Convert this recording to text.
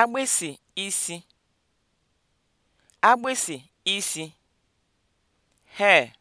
agbịsị isi agbịsị isi (hair)